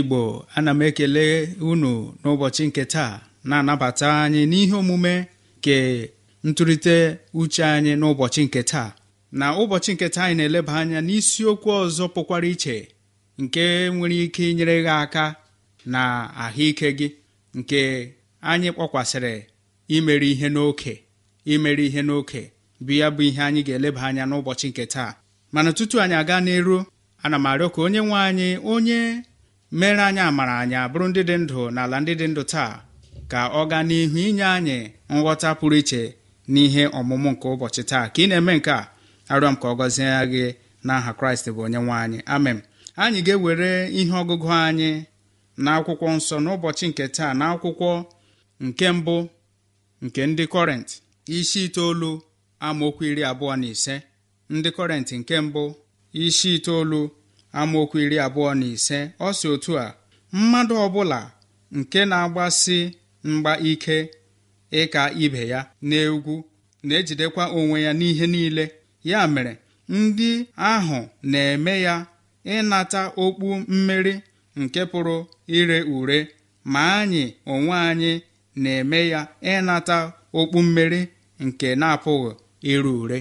igbo ana m ekele unu n'ụbọchị nke taa na-anabata anyị n'ihe omume nke ntụrịte uche anyị n'ụbọchị nke taa na ụbọchị nke taa anyị na-eleba anya n'isiokwu ọzọ pụkwara iche nke nwere ike inyere gị aka na ahụike gị nke anyị kpọkwasịrị imeri ihe n'oke imeri ihe n'oke bụ ya bụ ihe anyị ga-eleba anya n'ụbọchị nke taa mana tutu anyị aga n'eru ana m arịọ ka onye nwe anyị onye mere anyị amara anyị abụrụ ndị dị ndụ n'ala ndị dị ndụ taa ka ọ gaa n'ihu inye anyị nghọta pụrụ iche n'ihe ọmụmụ nke ụbọchị taa ka ị na-eme nke a arịọ m ka ọ gọzie gị n'aha kraịst bụ onye nwe anyị amen anyị ga-ewere ihe ọgụgụ anyị na akwụkwọ nsọ n'ụbọchị nke taa na akwụkwọ nke mbụ nke ndị kọrent isi itoolu amaokwu iri abụọ na ise ndị kọrent nke mbụ isi itoolu amaokwu iri abụọ na ise ọ si otu a mmadụ ọbụla nke na-agbasi mgba ike ịka ibe ya n'egwu na-ejidekwa onwe ya n'ihe niile ya mere ndị ahụ na-eme ya ịnata okpu mmeri nke pụrụ ire ure ma anyị onwe anyị na-eme ya ịnata okpu mmeri nke na-apụghị ire ure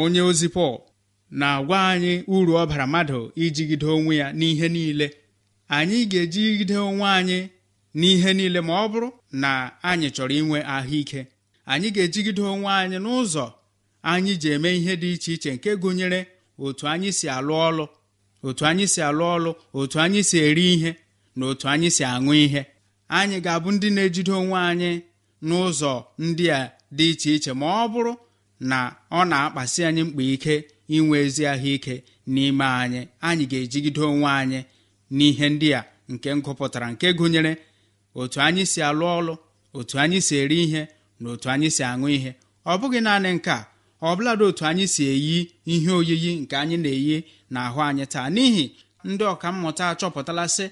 onye ozi Pọl na-agwa anyị uru ọ bara mmadụ ijigide onwe ya n'ihe niile anyị ga-ejigide onwe anyị n'ihe niile ma ọ bụrụ na anyị chọrọ inwe ahụike anyị ga-ejigide onwe anyị n'ụzọ anyị ji eme ihe dị iche iche nke gụnyere otu anyị si alụ ọlụ otu anyị si alụ ọlụ otu anyị si eri ihe na otu anyị si aṅụ ihe anyị ga-abụ ndị na-ejide onwe anyị n'ụzọ ndị a dị iche iche ma ọ bụrụ na ọ na-akpasi anyị mkpa ike inwe ezi ahụike n'ime anyị anyị ga-ejigide onwe anyị n'ihe ndị a nke ngụpụtara nke gụnyere otu anyị si alụ ọlụ otu anyị si eri ihe na otu anyị si aṅụ ihe ọ bụghị naanị nke a ọbụladị otu anyị si eyi ihe oyiyi nke anyị na-eyi n'ahụ anyị taa n'ihi ndị ọka mmụta achọpụtalasị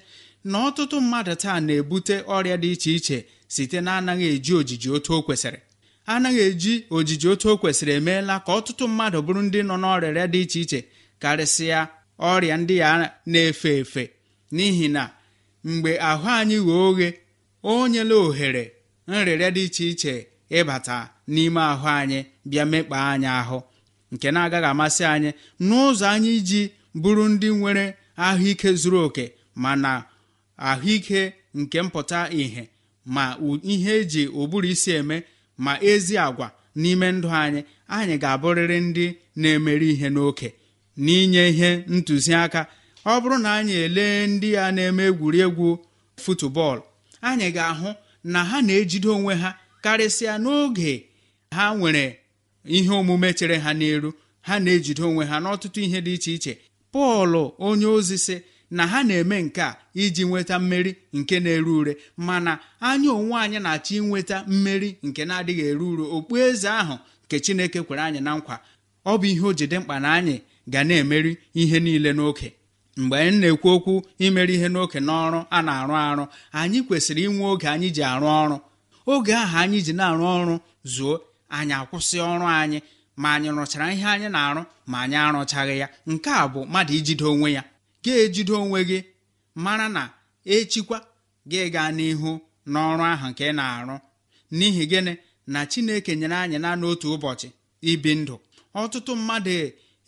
na ọtụtụ mmadụ taa na-ebute ọrịa dị iche iche site na anaghị eji ojiji otu o kwesịrị anaghị eji ojiji otu o kwesịrị emeela ka ọtụtụ mmadụ bụrụ ndị nọ n'ọrịa dị iche iche karịsịa ọrịa ndị ya na-efe efe n'ihi na mgbe ahụ anyị ghee oghe o nyela ohere nrịrịa dị iche iche ịbata n'ime ahụ anyị bịa mekpaa anyị ahụ nke na-agaghị amasị anyị n'ụzọ anyị iji bụrụ ndị nwere ahụike zuru oke mana ahụike nke mpụta ìhè ma ihe eji ụbụrụ isi eme ma ezi agwa n'ime ndụ anyị anyị ga-abụrịrị ndị na-emeri ihe n'oke n'inye ihe ntụziaka ọ bụrụ na anyị elee ndị a na-eme egwuregwu futubọọlụ anyị ga-ahụ na ha na-ejide onwe ha karịsịa n'oge ha nwere ihe omume chere ha n'elu ha na-ejide onwe ha n'ọtụtụ ihe dị iche iche pọl onye ozi sị na ha na-eme nke a iji nweta mmeri nke na-ere ure mana anya onwe anyị na-achọ inweta mmeri nke na-adịghị eru uru eze ahụ nke chineke kwere anyị na nkwa ọ bụ ihe o jide mkpa na anyị ga na-emeri ihe niile n'oke mgbe anyị na-ekwu okwu imeri ihe n'oke n'ọrụ a na-arụ arụ anyị kwesịrị inwe oge anyị ji arụ ọrụ oge ahụ anyị ji na-arụ ọrụ zuo anyị akwụsị ọrụ anyị ma anyị rụchara ihe anyị na-arụ ma anyị arụchaghị ya nke a bụ mmadụ ijide onwe ya ga-ejide onwe gị mara na echikwa gị gaa n'ihu n'ọrụ ahụ nke ị na-arụ n'ihi gịnị na chineke nyere anyị na n'otu ụbọchị ibi ndụ ọtụtụ mmadụ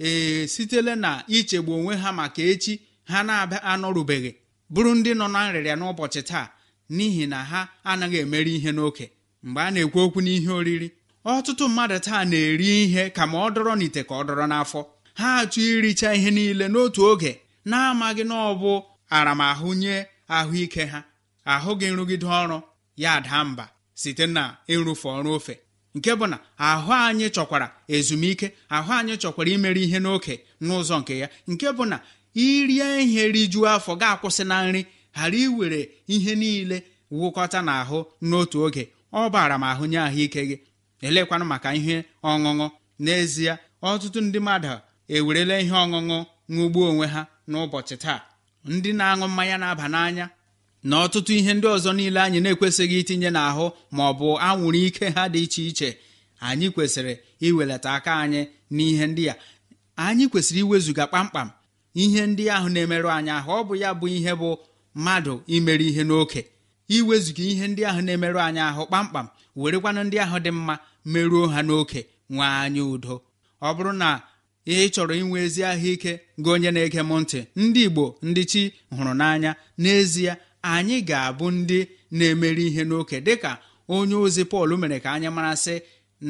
ee na ichegbu onwe ha maka echi ha na-abịa anọrubeghị bụrụ ndị nọ na nrịrịa n'ụbọchị taa n'ihi na ha anaghị emeri ihe n'oke mgbe a na-ekwu okwu n'ihe oriri ọtụtụ mmadụ taa na-eri ihe ka ma ọ dọrọ n'ite ka ọ dọrọ n'afọ ha achụ iricha ihe niile n'otu oge na-amaghị na ọ bụ aramahụ nye ahụike ha ahụghị nrụgide ọrụ ya daa mba site na ịrụfe ọrụ ofe nke bụ na ahụ anyị chọkwara ezumike ahụ anyị chọkwara imere ihe n'oke n'ụzọ nke ya nke bụ na irie ihe rijuo afọ ga-akwụsị na nri ghara iwere ihe niile wụkọta n'ahụ n'otu oge ọ bara m ahụ nye ahụike gị elekwanụ maka ihe ọṅụṅụ n'ezie ọtụtụ ndị mmadụ ewerela ihe ọṅụṅụ ṅụgbuo onwe ha n'ụbọchị taa ndị na-aṅụ mmanya na-aba n'anya na ọtụtụ ihe ndị ọzọ niile anyị na-ekwesịghị itinye n'ahụ ma ọ bụ anwụrụ ike ha dị iche iche anyị kwesịrị iwelata aka anyị n'ihe ndị a anyị kwesịrị iwezuga kpamkpam ihe ndị ahụ na-emerụ anyị ahụ ọ bụ ya bụ ihe bụ mmadụ imere ihe n'oke iwezuga ihe ndị ahụ na-emerụ anyị ahụ kpamkpam werekwanụ ndị ahụ dị mma merụo ha n'oke nwee anyị udo ọ bụrụ na ihe ị chọrọ inwe ezi ahụike gị onye na-ege m ntị ndị igbo ndị chi hụrụ n'anya n'ezie anyị ga-abụ ndị na-emeri ihe n'oke dịka onye ozi pọl mere ka anyị marasị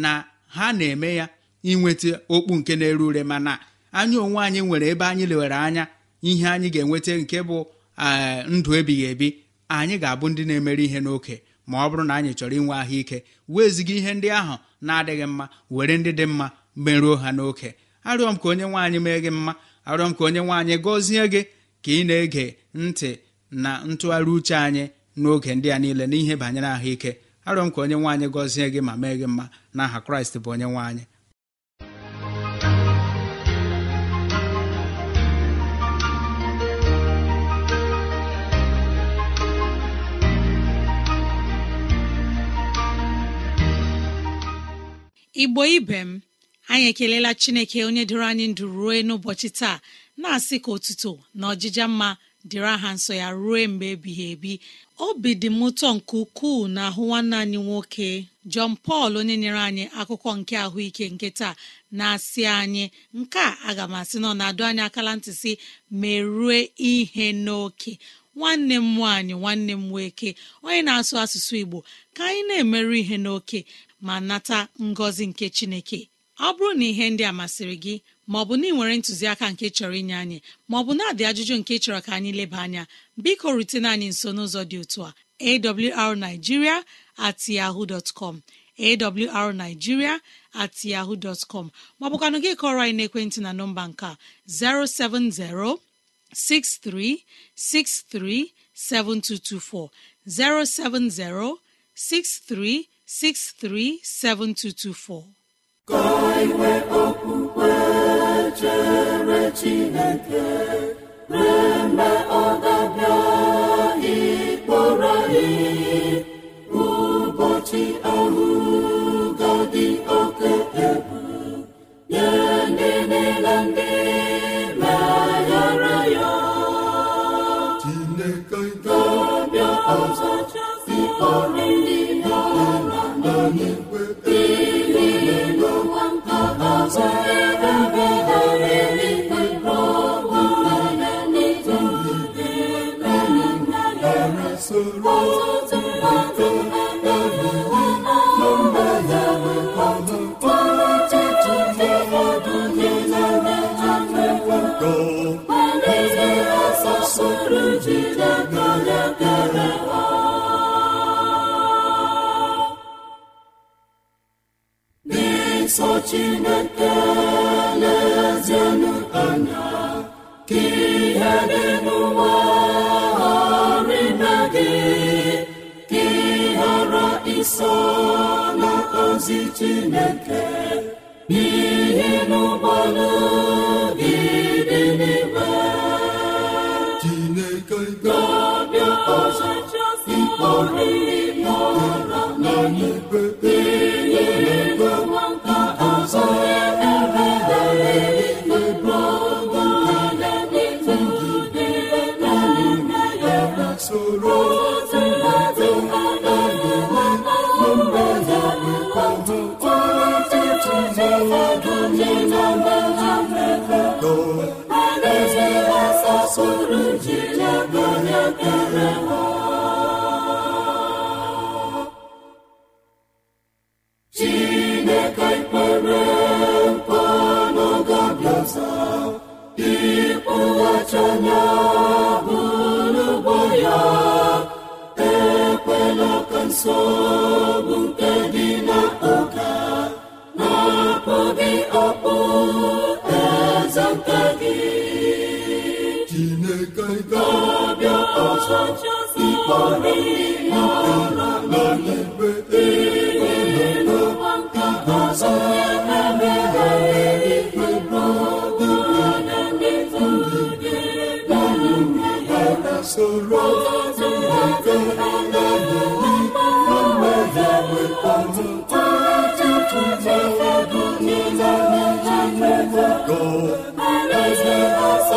na ha na-eme ya inweta okpu nke na-ere ure mana anyị onwe anyị nwere ebe anyị lewere anya ihe anyị ga-enweta nke bụ eh, ndụ ebighị ebi anyị ga-abụ ndị na-emeri ihe n'oke ma ọ bụrụ na anyị chọrọ inwe ahụike weziga ihe ndị ahụ na-adịghị mma were ndị dị mma merụọ ha n'oke arịọ m ka onye nwaanyị anyị mee gị mma arịọ m ka onye nwe anyị gọzie gị ka ị na-ege ntị na ntụgharị uche anyị n'oge ndị a niile n'ihe banyere ahụike arịọ m ka onye nwaanyị anyị gọzie gị ma mee gị mma n'aha kraịst bụ onye nwaanyị igbo ibe m anyị ekelela chineke onye dịrị anyị ndụ rue n'ụbọchị taa na-asị ka otuto na ọjịja mma dịrị aha nsọ ya rue mgbe ebighị ebi obi dị m ụtọ nke ukwuu na ahụ nwanne anyị nwoke jọn pọl onye nyere anyị akụkọ nke ahụike nke taa na-asị anyị nke a aga m asị nọ na-adụ anyị akala ntị si merue ihe n'oke nwanne m nwaanyị nwanne m nwoke onye na-asụ asụsụ Igbo ka anyị na-emerụ ihe n'oke ma nata ngọzi nke Chineke ọ bụrụ na ihe ndị a masịrị gị maọbụ na ị nwere ntụziaka nke chọrọ inye anyị maọbụ na-adị ajụjụ nke chọrọ ka anyị leba anya biko rutena anyị nso n'ụzọ dị otu a awrnigeria at yahoo dọtcọm awrnigeria at yahoo dọtcọm maọbụkwanụ gị kọrọ anyị n'ekwentị na nọmba nke 07063637224 07063637224 ka iwe okpukpe chere chineke mgbe ọ ga-abịa ịkpọrọ ihe ụbọchị ahụ ga dị oke egwu ndị niile ndị na ya ọzọ si ndị na n'igwe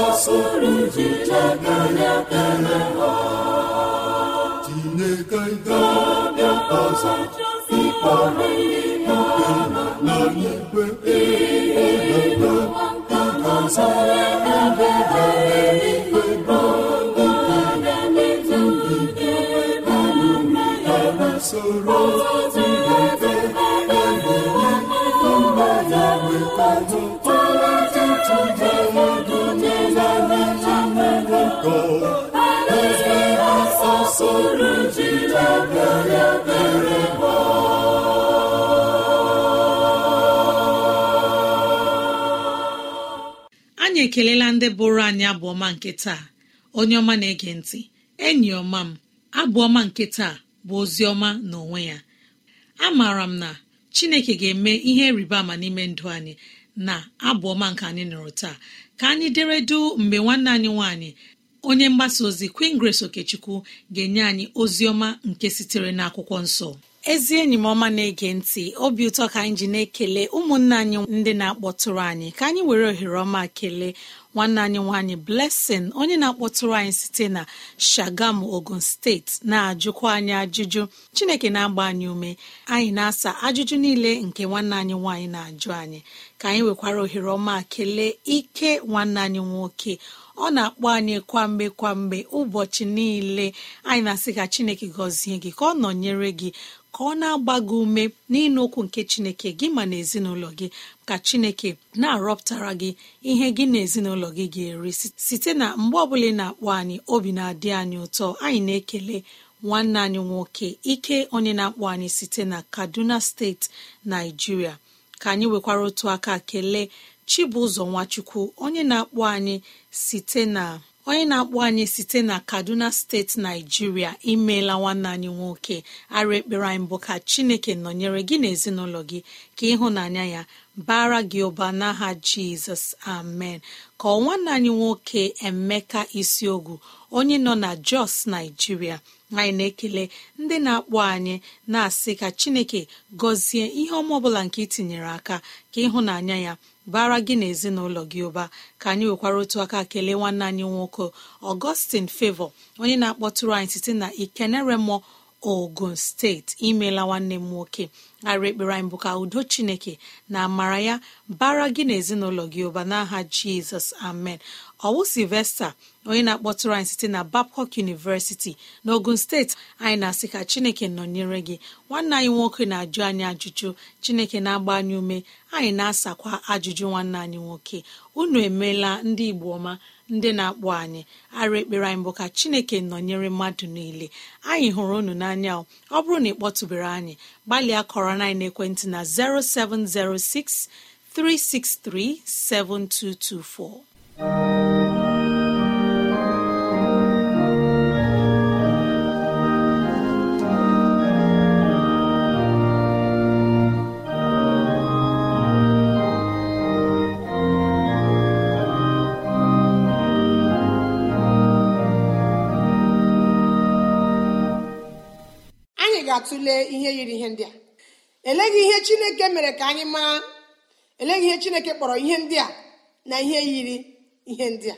tinye aka ikpe na n'igwe anyị ekelela ndị bụrụ anyị abụọma nke taa onye ọma na-ege ntị enyi ọma m abụọma nke taa bụ ozi ọma n'onwe ya A amaara m na chineke ga-eme ihe rịba ama n'ime ndụ anyị na abụọma nke anyị nụrụ taa ka anyị dere du mgbe nwanne anyị nwanyị. onye mgbasa ozi queen grace okechukwu ga-enye anyị ozi ọma nke sitere n'akwụkwọ nsọ ezi enyi m ọma na-ege ntị obi ụtọ ka anyị ji na-ekele ụmụnna anyị ndị na-akpọtụrụ anyị ka anyị were ohere ọma kelee nwanne anyị nwanyị Blessing onye na-akpọtụrụ anyị site na Shagamu Ogun steeti na-ajụkwa anyị ajụjụ Chineke na-agba anyị ume anyị na-asa ajụjụ niile nke nwanne anyị nwanyị na-ajụ anyị ka anyị nwekwara ohere ọma kelee ike nwanne anyị nwoke ọ na-akpọ anyị kwamgbe kwamgbe ụbọchị niile anyị na-asị ka Chineke gọzie gị ka ọ nọnyere gị ka ọ na-agba gị ume n'ịnụ okwu nke chineke gị ma na ezinụlọ gị ka chineke na-arọpụtara gị ihe gị na ezinụlọ gị ga-eri site na mgbe ọbụla ị na-akpọ anyị obi na-adị anyị ụtọ anyị na-ekele nwanne anyị nwoke ike onye na-akpọ anyị site na kaduna steeti naijiria ka anyị nwekwara otu aka kelee chibụzọ nwachukwu onye na-akpọ anyị site na onye na-akpọ anyị site na kaduna steeti naijiria imeela nwanne anyị nwoke ara ekpere anyị mbụ ka chineke nọnyere gị na ezinụlọ gị ka ịhụnanya ya bara gị ụba n'aha jizọs amen ka nwanne anyị nwoke emeka isiogwu onye nọ na jos naijiria anyị na-ekele ndị na-akpọ anyị na-asị ka chineke gọzie ihe ọma ọbụla nke itinyere aka ka ịhụnanya ya bara gị na ezinụlọ gị ụba ka anyị nwekwara otu aka kelee nwanne anyị nwoke ọgọstin favọ onye na-akpọtụrụ anyị site na ikeneremo ogun steeti imeela nwanne m nwoke ara ekpere anyị bụ ka udo chineke na amara ya bara gị na ezinụlọ gị ụba n'aha jizọs amen ọwụ silvesta onye na-akpọtụrụ anyị site na babcok University n'Ogun steeti anyị na-asị ka Chineke nọnyere gị nwanne anyị nwoke na-ajụ anyị ajụjụ Chineke na-agba anyị ume anyị na-asakwa ajụjụ nwanne anyị nwoke unu emeela ndị Igbo ọma ndị na-akpọ anyị ara ekpere anyị bụ ka Chineke nọnyere mmadụ niile anyị hụrụ unu n'anya ọ bụrụ na ị kpọtụbere anyị gbalịa kọrọ anyị ekwentị na 0706 7224 na-atụle ihe yiri ihe ndị a eleghị ihe chineke mere ka anyị maa eleghị ihe chineke kpọrọ ihe ndị a na ihe yiri ihe ndị a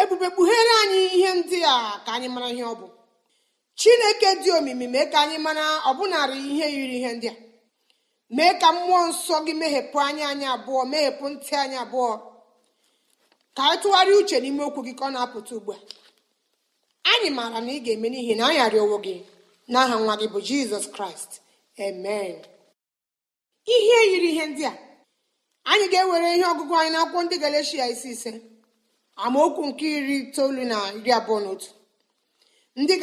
ebube kpughere anyị ihe ndị a ka anyị mara ihe ọ bụ chineke dị omimi mee ka anyị mara ọbụnarị ihe yiri ihe ndị a mee ka mmụọ nsọ gị meghepụ anya anyị abụọ meghepụ ntị anyị abụọ ka anyị tụgharịa uche n'ime okwu gị ka ọ na-apụta ugbu a anyị maara na ị ga-eme n'ihi na anyị arịọwo gị n'aha nwa gị bụ jizọs kraịst amen ihe yiri ihe ndị a anyị ga-ewere ihe ọgụgụ anyị n'akwụkwọ ndị galeshia isi ise amaokwu nke iri itoolu na iri abụọ na ndị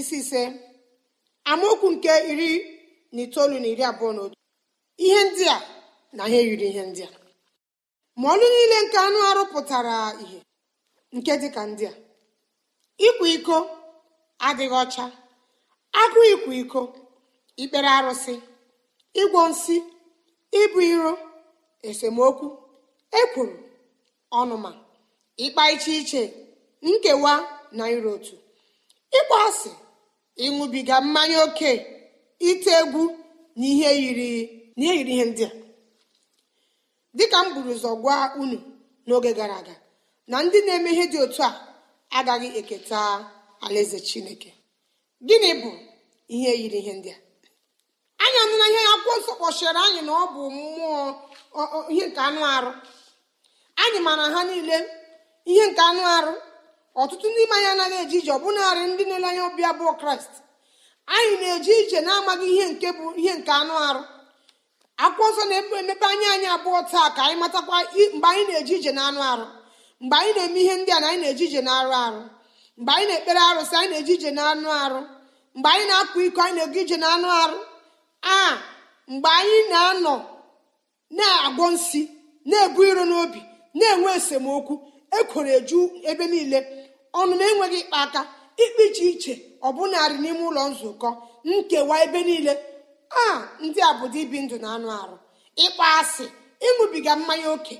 isi ise amaokwu nke iri na itoolu na iri abụọ na otu ihe ndị a na ihe yiri ihe ndị a ma ọlụ niile nke anụ arụ pụtara ihe nke dịka ndị a ịkwa iko adịghị ọcha agụ ikwa iko ikpere arụsị ịgwọ nsị ịbụ iro esemokwu ekwuru ọnụma ịkpa iche iche nkewa na iro otu ịkpọ asị ịṅụbiga mmanya oke ite egwu na ihe yiri ihe ndị a dịka m buru ụzọ gwa unu n'oge gara aga na ndị na-eme ihe dị otu a agaghị eketa alaeze chineke gịnị bụ ihe yiri ihe ndị a anyị na ihe akwụkwọ nsọ kpọchiri anyị na ọ bụ mmụọ ihe nke anụ arụ anyị mara ha niile ihe nke anụ arụ ọtụtụ ndị ime anyị anaghị eji ije ọbụnarị ndị na-ele anya ọbịa bụ kraịst anyị na eji ije na-amaghị ihe nke bụ ihe nke anụ arụ akwụkwọ nsọ na-emepe emepe anya anyị abụọ taa ka anyị matakwa mgbe anyị na eji ije na anụ arụ mgbe anyị na-eme ihe ndị a na anyị na-eje ije na arụ arụ mgbe anyị na-ekpere arụsị anyị na eji ije na anụ arụ mgbe anyị na-akwa iko anyị na-ego ije na anụ arụ a mgbe anyị na-anọ na-agwọ nsi na-ebu iro n'obi na-enwe esemokwu ekwere eju ebe niile ọnụ na-enweghị ịkpa aka ikpe iche iche ọbụnarị n'ime ụlọ nzukọ nkewa ebe niile a ndị a bụ ibi ndụ na anụ arụ ịkpa asị ịṅụbiga mmanya ókè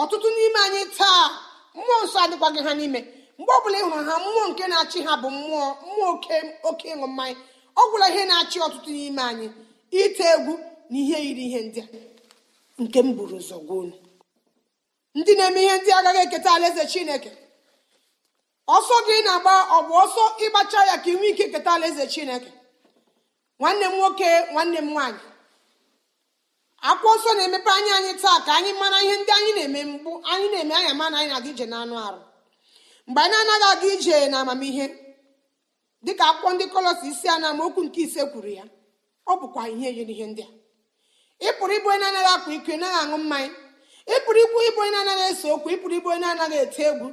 ọtụtụ n'ime anyị taa mmụọ nsọ adịkwaghị ha n'ime mgbe ọbụla ị hụrụ ha mmụọ nke na-achị ha bụ mmụọ mmụọ oke oke ịṅụ mmanya ọ gwụla ihe na-achị ọtụtụ n'ime anyị ite egwu na ihe yiri ihe ndị a nke m buru ụzọ ndị na-eme ihe ndị agaghị eketa alaeze chineke ọsọ gị na-agba ọ bụ ọsọ ịgbacha ya ka ị ike keta alaeze chineke nwanne m nwoke nwanne m nwaanyị akwụkwọ ọsọ na-emepe anya anyị taa ka anyị mara ihe ndị anyị na-eme mgbu anyị na-eme anya mana anyị na-adị ije anụ arụ mgbe anyị anaghị aga ije na amamihe dịka akwụkwọ ndị kọlọs isi a na amaokwu nke ise kwuru ya ọ bụkwa ihe yiri ihe ndị a ị pụrụ ịbụ onye anaghị akwa iko naghị aṅụ mmanya ị pụrụ ịbụ ịbụ onye anaghị ese okwu ị pụrụ ịbụ onye anaghị ete egwu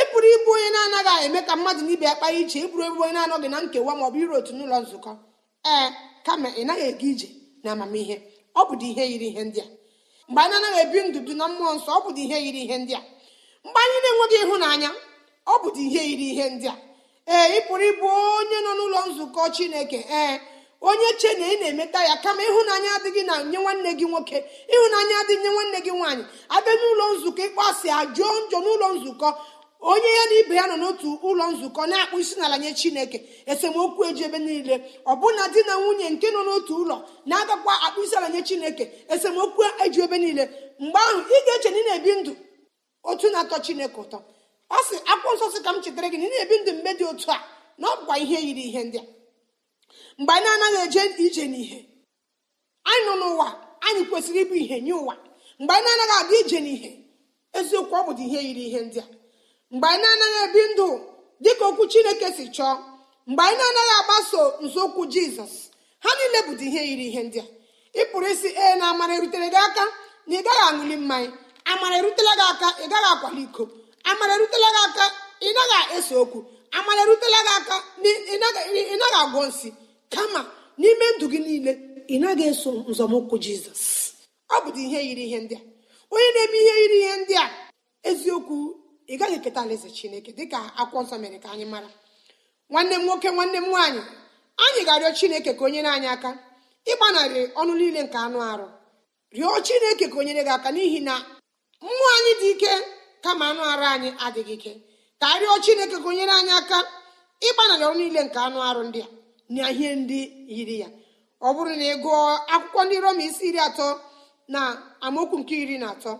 ị pụrụ ịbụ onye na-anaghị eme ka mmadụ na ibe ya kpaa iche ị pụrụ ịbụ onye na-anọghị na nkewa ma ọ bụ iru otu n'ụlọ nzukọ ee kama ị naghị aga ije na amamihe ọ bụ ihe yiri ihe ndị a mgbe anyị anaghị ebi ndụ bi na mmụọ nsọ ọ bụ ihe yiri ihe ndị a mgbe anyị na-enweghị ịhụnanya ọ bụdị ihe yiri ihe ndị a ee ị pụrụ ịbụ onye nọ n'ụlọ nzukọ chineke ee onye che na ị na-emeta ya kama ịhụnanya adịghị na nye nwanne gị nwoke ịhụnanya adịghị nye nwanne gị nwaanyị abịa n'ụlọ nzukọ ịkpọasị ajụọ njọ n'ụlọ nzukọ onye ya na ibe ya nọ n'otu ụlọ nzukọ na-akpụ isi n'ala nye chineke esemokwu eji ebe niile ọbụna di na nwunye nke nọ n'otu ụlọ na-agakwa akpụ isi ala nye chineke esemokwu eji ebe niile mgbe ahụ ị ga-eche na ị na-ebi ndụ otu na-atọ chineke ụtọ ọ sị akwụkwọ nsọ sị ka m chetara gị na ị na-ebi ndụ mgbe dị otu a na ọ bụkwa ihe yiri ihe ndị a mgbe anyị anaghị eje ije n'ihe anyị nọ n'ụwa anyị kwesịrị ịbụ ihe nye ụwa mgbe anyị anaghị aga ije n'ihe eziokwu ọ bụdị ihe yiri ihe ndị a mgbe anyị anaghị ebi ndụ dị ka okwu chineke si chọọ mgbe anyị na-anaghị agbaso nzọụkwụ jizọs ha niile bụdị ihe yiri ihe ndị a ị pụrụ isi ee na amara erutere gị aka na ị gaghị aṅụli mmanya amara erutela gị aka ị gaghị akwali iko amara erutela gị aka ị naghị ese okwu amara erutela gị aka ị naghị agwọ nsị kama n'ime ndụ gị niile ị naghị eso nzọmụkwụ jizọs ọ bụdị ihe yiri ihe ndị a onye na-eme ihe yiri ihe ndị a eziokwu ị gaghị eketa alaeze chineke dịka akwụkwọ nsọ mere ka anyị mara nwanne m nwoke nwanne m nwaanyị anyị ga-arịọ chineke ka onyere anyị aka ịgbanarị ọnụ niile nke anụ arụ rịọ chineke ka onyere gị aka n'ihi na mmụọ anyị dị ike kama anụ arụ anyị adịghị ike ka arịọ chineke gụnyere anyị aka ịgbanarị ọrụ niile nke anụ arụ ndị a na ihe ndị yiri ya ọ bụrụ na ị gụọ akwụkwọ ndị roma isi iri atọ na amaokwu nke iri na atọ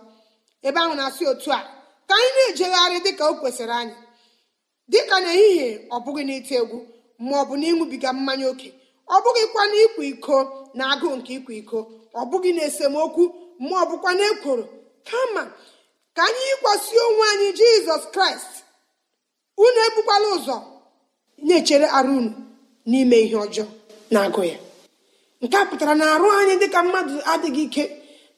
ebe ahụ na-asị otu a ka anyị na-ejegharị dịka o kwesịrị anyị dịka n'ehihie ọ bụghị n'ite egwu ma ọ bụ na ịṅụbiga mmanya oke ọ bụghịkwa na ịkwa iko na agụụ nke ịkwa iko ọ bụghị na esemokwu ma ọ bụkwa na ekworo kama ka anyị yikwasị onwe anyị jizọs kraịst unu ebukwala ụzọ na-echere arụ unu n'ime ihe ọjọọ na-agụ ya nke a pụtara na arụ anyị dịka mmadụ adịghị ike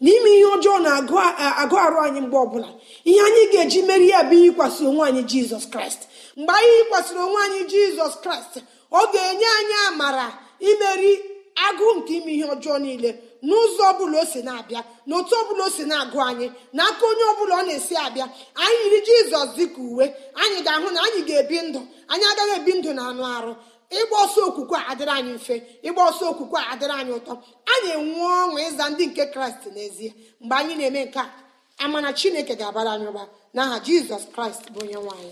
n'ime ihe ọjọọ na-agụ arụ anyị mgbe ọbụla ihe anyị ga-eji meri ya bụ yikwasị onwe anyị jizọs kraịst mgbe anyị yikwasịrị onwe anyị jizọs kraịst ọ ga-enye anyị amara imeri agụụ nke ime ihe ọjọọ niile n'ụzọ ọbụla o si na-abịa na ọ ọbụla o si na-agụ anyị na aka onye ọbụla ọ na-esi abịa anyị yiri jizọs dịka uwe anyị ga-ahụ na anyị ga-ebi ndụ anyị agaghị ebi ndụ na anụ arụ ịgba ọsọ okwukwe a adịrị anyị mfe ịgba ọsọ okwukwe a adịrị anyị ụtọ anyị enwe ọṅụ ịza ndị nke kraịst n'ezie mgbe anyị na-eme nke a amana chineke ga-abara anyị ụba n'aha jizọs kraịst bụ onye nwaanyị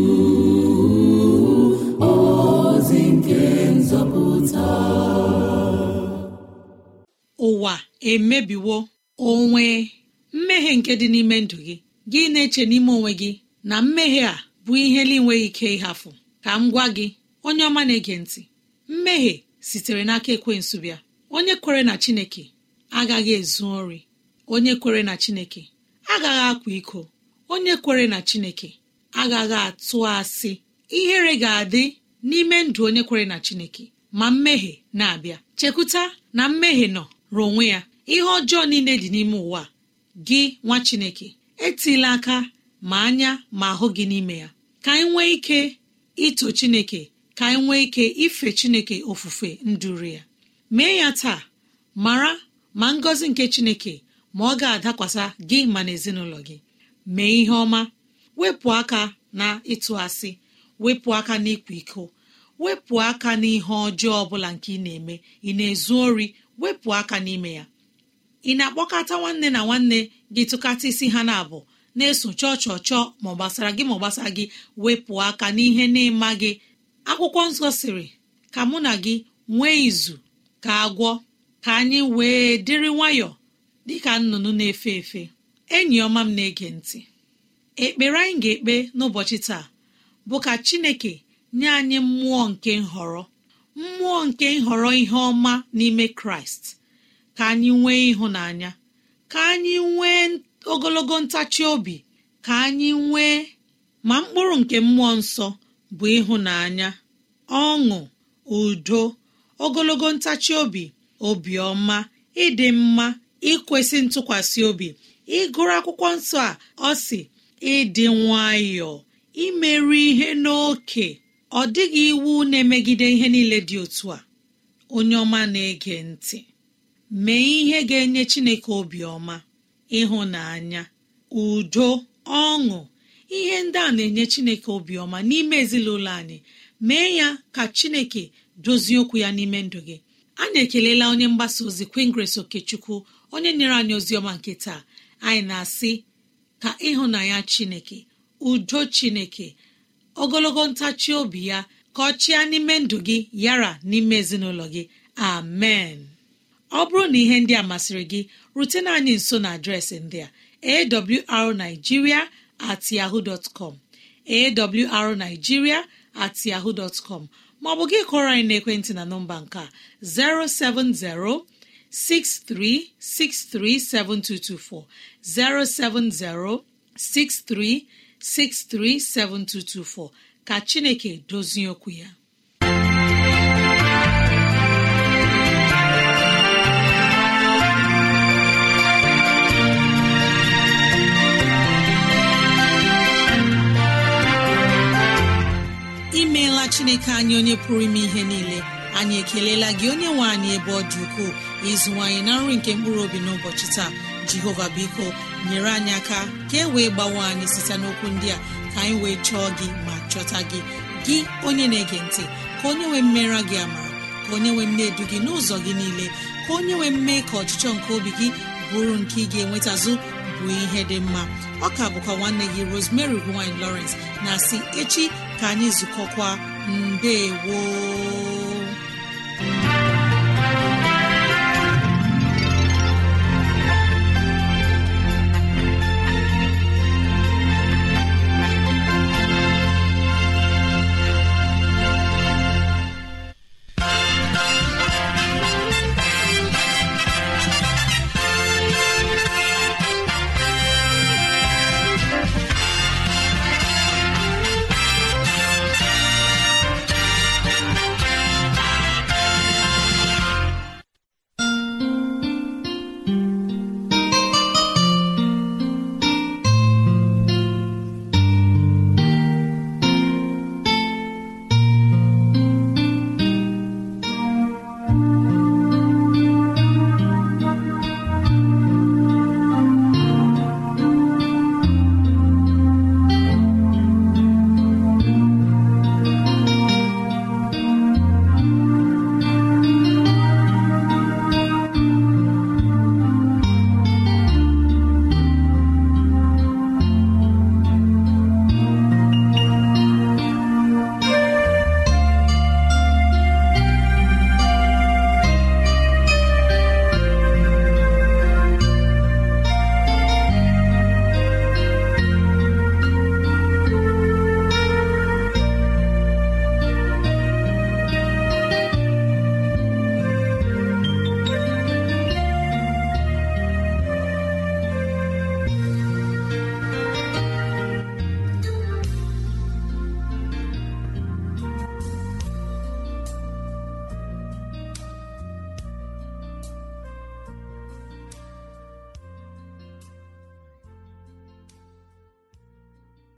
ụwa emebiwo onwe mmehie nke dị n'ime ndụ gị gị na-eche n'ime onwe gị na mmehie a bụ ihe na-enweghị ike ịhafụ ka m gwa gị onye ọma na-ege ntị mmehie sitere n'aka ekwensu bịa onye kwere na chineke agaghị ezu ori onye kwere na chineke agaghị akwa iko onye kwere na chineke agaghị atụ asị ihere ga-adị n'ime ndụ onye kwere na chineke ma mmehie na-abịa chekwuta na mmehie nọ rụọ onwe ya ihe ọjọọ niile dị n'ime ụwa gị nwa chineke etila aka ma anya ma ahụ gị n'ime ya ka anyị nwee ike ito chineke ka anyị nwee ike ife chineke ofufe nduru ya mee ya taa mara ma ngọzi nke chineke ma ọ ga-adakwasa gị ma na gị mee ihe ọma wepụ aka na ịtụ asị wepụ aka n'ịkwa iko wepụ aka n'ihe ọjọọ ọbụla nke ị na-eme ị na-ezu ori wepụ aka n'ime ya ị na-akpọkọta nwanne na nwanne gị tụkata isi ha na-abụ na-eso chọọ chọọ chọọ ma ọ gbasara gị ma gbasara gị wepụ aka n'ihe na-ịma gị akwụkwọ nsọ sịrị ka mụ na gị nwee izu ka agwọ ka anyị wee dịrị nwayọọ dịka nnụnụ na-efe efe enyi ọma m na-ege ntị ekpere anyị ga-ekpe n'ụbọchị taa bụ ka chineke nye anyị mmụọ nke nhọrọ mmụọ nke nhọrọ ihe ọma n'ime kraịst ka anyị nwee ịhụnanya ka anyị nwee ogologo ntachi obi ka anyị nwee ma mkpụrụ nke mmụọ nsọ bụ ịhụnanya ọṅụ udo ogologo ntachi obi obiọma ịdị mma ikwesị ntụkwasị obi ịgụrụ akwụkwọ nsọ a ọ si ịdị nwayọọ imerụ ihe n'oke ọ dịghị iwu na-emegide ihe niile dị otu a onye ọma na-ege ntị mee ihe ga-enye chineke obiọma ịhụnanya udo ọṅụ ihe ndị a na-enye chineke obiọma n'ime ezinụlọ anyị mee ya ka chineke dozie okwu ya n'ime ndụ gị anyị ekelela onye mgbasa ozi kwingres okechukwu onye nyere anyị ozi ọma nke taa anyị na-asị ka ịhụnanya chineke udo chineke ogologo ntachi obi ya ka ọ chịa n'ime ndụ gị yara n'ime ezinụlọ gị amen ọ bụrụ na ihe ndị a masịrị gị rutena anyị nso na adreesị ndị a awrnigeria@yahoo.com, at yahoo dọtcom awrnigeria at maọbụ gị kọrọ anyị n'ekwentị na nọmba nke 070 63637224 070 63 637224 ka Chineke dozie okwu ya imeela Chineke anyị onye pụrụ ime ihe niile anyị ekelela gị onye nwe anyị ebe ọ dị ukwuu ịzụwanyị na nri nke mkpụrụ obi n'ụbọchị taa jehova biko nyere anyị aka ka e wee gbawe anyị site n'okwu ndị a ka anyị wee chọọ gị ma chọta gị gị onye na-ege ntị ka onye nwee mmera gị ama ka onye nwee mne gị n'ụzọ gị niile ka onye nwee mme ka ọchịchọ nke obi gị bụrụ nke ị ga-enweta bụ ihe dị mma ọka bụkwa nwanne gị rosemary gine lawrence na si echi ka anyị zukọkwa mbe woo